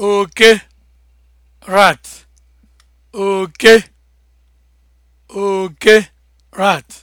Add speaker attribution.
Speaker 1: oke rat oke oke rat